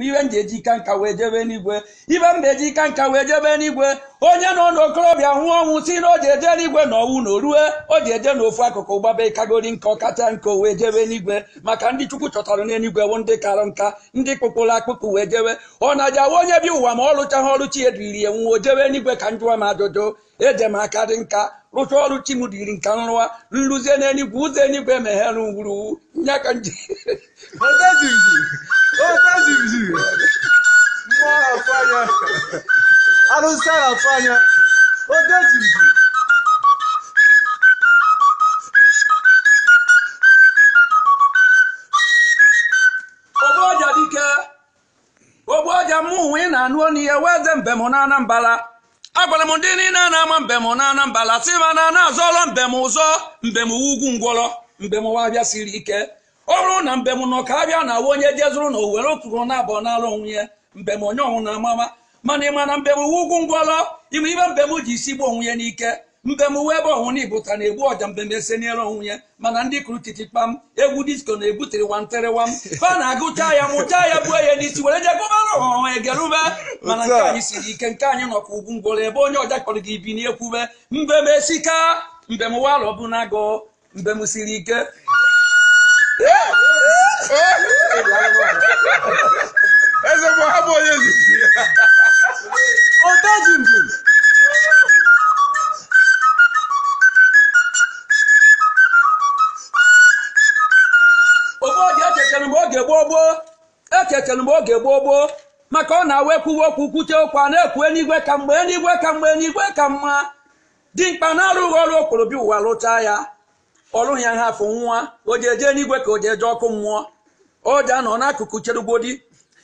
ibe m ga-eji ika nka wee jebe n'igwe ibe m ga-eji ika nka wee jebe n'igwe onye nọ n'okorobịa hụ ọnwụ si na o ji eje n'igwe na ọnwụ na orue o ji eje n'ofu akụkụ gbaba ịkagori nka ọkacha nka wee jebe n'igwe maka ndị chukwu chọtara n'eluigwe bụ ndị kara nka ndị kpụkpụrụ akpụkpụ wee jebe ọ na-aja awa onye bi ụwa ma ọ rụchaghị ọrụ chi ediri ya o jebe n'igwe ka njụwa m ajụjụ eje m aka dị nka rụcha ọrụ chi m dịrị nka nrụwa nrụzie n'eluigwe ụzọ eluigwe meghere ngwuru ya ka arụsị a na-atụ anya oge jiri ogbeọja dike ogbeọja mụ onwe ị na-anụ ọnụ ihe weze mbem na anambala agwara m ndị niile na-ama mbem na anambala si ma na na azọrọ mbem ụzọ mbem ugwu ngwọrọ mbem ụwa bịa siri ike ọ bụrụ na mbem nọ ka na awa onye jezuru na owere oturu na abụọ n'ala onwe ya mbem onye ọnwụ na amama mana ị ma na mbem uwe ugwu ngwala ime ibe mbem ji isi gbuo onwe ya n'ike mbem uwe ebe ọnwụ na ibụta na-egbu ọja mbem ese n'elu onwe ya mana ndị kụrụ titi kpam egwu disko na-ebutere wanterewam fa na-agụcha ya mụcha ya buo ya n'isi were jegobara ọha egerube mana nke anyị siri ike nke anyị nọkwa ugwu ngwala ebe onye ọja kpọrọ gị bi n'ekwube mbem esika mbem uwe alọ bụ na agụ mbem siri ike oge gboo gboo ekekere mgbe oge gboo gboo maka ọ na-awa ekwuwe okwu kwuche okwu a na-ekwu eluigwe ka mgbe eluigwe ka mgbe eluigwe ka mma dimkpa na-arụghị ọrụ okporobịa ụwa lụchaa ya ọrụ ya ha afụ nwa o ji eje eluigwe ka o ji eje ọkụ mmụọ o ji anọ n'akụkụ cherugodi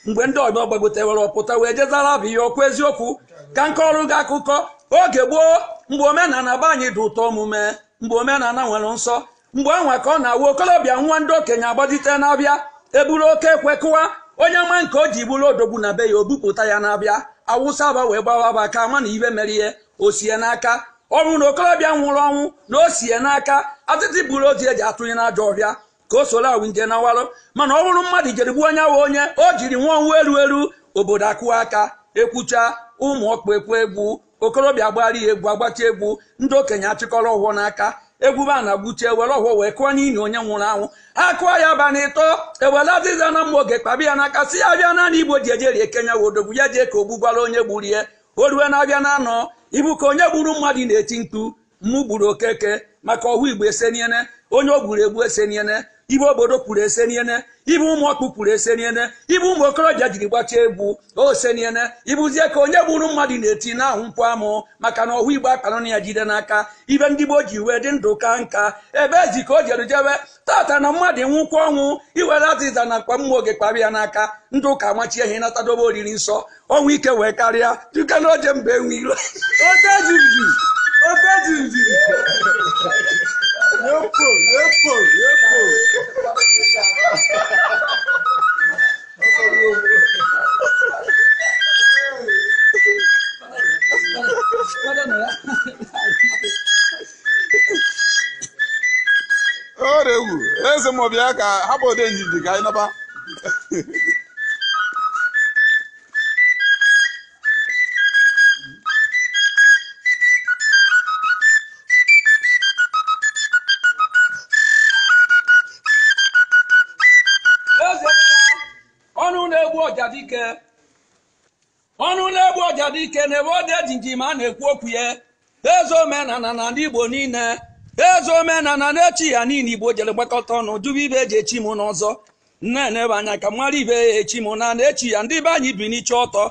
mgbe ndị ọgbọ gbagotewere ọpụta wee jezara bụ ihe okwu eziokwu ka nke ọrụ gị akụkọ oge gboo mgbe omenala be anyị dị ụtọ omume mgbe omenala nwere nsọ mgbe anwa ka ọ na-awa okorobịa nwa ndị okenye agbazite na-abịa eburu oke ekwe kụwa onye ma nke o ji buru odogbu na be ya obupụta ya na-abịa awụsa aba wee gbawa aba ka ama na ibe mere ihe o sie n'aka ọ bụrụ na okorobịa nwụrụ ọnwụ na o sie n'aka atịtị buru ozi eji atụnye na ajọ ọhịa ka o soro awụ nje nawarụ mana ọ bụrụ mmadụ jere gbuo onye awa onye o jiri nwa ọnwụ eru eru obodo akụwa aka ekwucha ụmụ ọkpụ ekwu egwu okorobịa agbara ya egwu agbacha egwu ndị okenye achịkọrọ ụhụ n'aka egwube a na-agbuchi ewere ọhụụ wee kụọ n'ili onye nwụrụ anwụ akụọ ya ba na ịtọ ewere azịza na mma oge kpabi ya n'aka si ya bịa naanị igbo ji ejeri ekenya wodogbu ya jee ka gbugbara onye gburie o ruwe na-abịa na anọ ibu ka onye gburu mmadụ na-eti ntụ mmụ gburu okeke maka ọhụ igbo eseniene onye o gburu egbu eseniene ibe obodo pụrụ ese niene ibe ụmụ ọkpụ pụrụ ese niene ibe ụmụ okorobịa jiri gbachaa egwu ose niene ịbụzie ka onye gburu mmadụ na-eti ahụ mkpụ amụ maka na ọhụ igbo akpanụna ya jide n'aka ibe ndị gboo ji wee dị ndụ ka nka ebe ezi ka o jeru jebe tata na mmadụ nwụkwa ọnwụ iwere azịza na mkpa mmụọ oge kpara ya n'aka ndụ ka machie ihe natadobe oriri nsọ ọnwụ ike wee karịa duka na oje mba enwe yóò pò yóò pò yóò pò. ọrịa egwu eze ma ọ bịa ka hapụ ode njiji ka anyị naba ọjadike ọnụ na-egbu ọjadike na-ebe ọ dị ma a na-ekwu okwu ya eze omenala na ndị igbo niile eze omenala na-echi ya niile igbo jere gbakọta ọnụ jụba ibe eji echi m n'ọzọ nne na-ebe anya ka mara ibe ya echi m na na-echi ya ndị be anyị bi n'iche ọtọ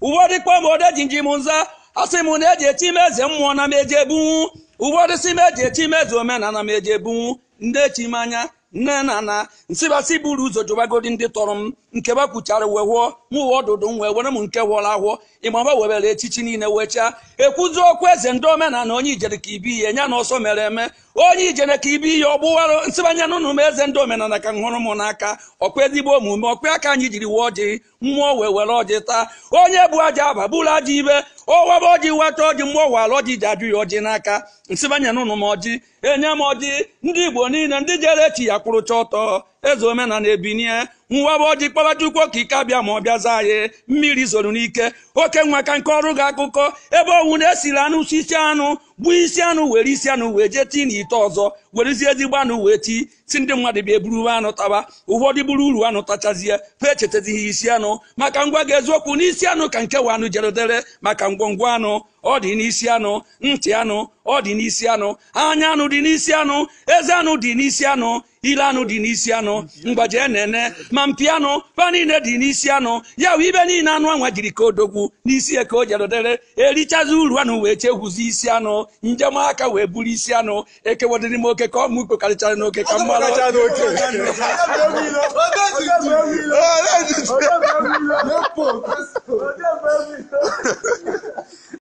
ọdị ji m nza asị m na eji echi m eze mmụọ na m eje bunwu uwedịsị m eji echi m eze omenala m eje bunwu ndị echi m anya nne na nna nsịbasị buru ụzọ jụbagodi ndị tọrọ m nke bakwuchara uwe wụọ m uwe ọdụdụ m wee were m nke wụọla ahụọ ịgbaba webere echichi niile wechaa ekwuzi okwu eze ndị omenala onye ijere ka ibi ihe ya na ọsọ mere eme onye ijere ka ibi ihe ọ gbụwara nsịbanye n'ụnụ m eze ndị omenala ka m hụrụ m n'aka ọkpa ezigbo omume ọkpa aka anyị jiri wuo ji mmụọ wee were ọjị taa onye bụ aja aba bụrụ aja ibe ọwaba ọjị weta ọjị mmụọ wara ọjị ji ajụ ya ọjị n'aka nsịbanye n'ụnụ m ọjị enye m ọjị ndị igbo niile ndị jere chi ya kwụrụcha ọtọ eze omenana ebinie nwa bụ ọjị kpọba ka ike abịa ma ọ zaa anyị mmiri zoro n'ike oke nwa ka nke ọrụ gị akụkọ ebe ọnwụ na-esiri anụ sisi anụ gbuo isi anụ were isi anụ wee jee tii ite ọzọ werezie ezigbo anụ wee tii si ndị mmadụ bịa eburu anụ taba ụfọdụ buru uru anụ tachazie ha echetazighị isi anụ maka ngwa ga eziokwu n'isi anụ ka nke wa anụ dere maka ngwongwo anụ ọ dị n'isi anụ ntị anụ ọ dị n'isi anụ anya anụ dị n'isi anụ eze anụ dị n'isi anụ ile anụ dị n'isi anụ mgbaji enene ma mpi anụ fa niile dị n'isi anụ ya wee ibe niile anụ anwa jiri ka odogwu n'isi ya ka o jedodere erichazi uru anụ wee chekwuzi isi anụ njem aka wee buru isi anụ ekewodịrị m oke ka ọmụ n'oke ka mmalụ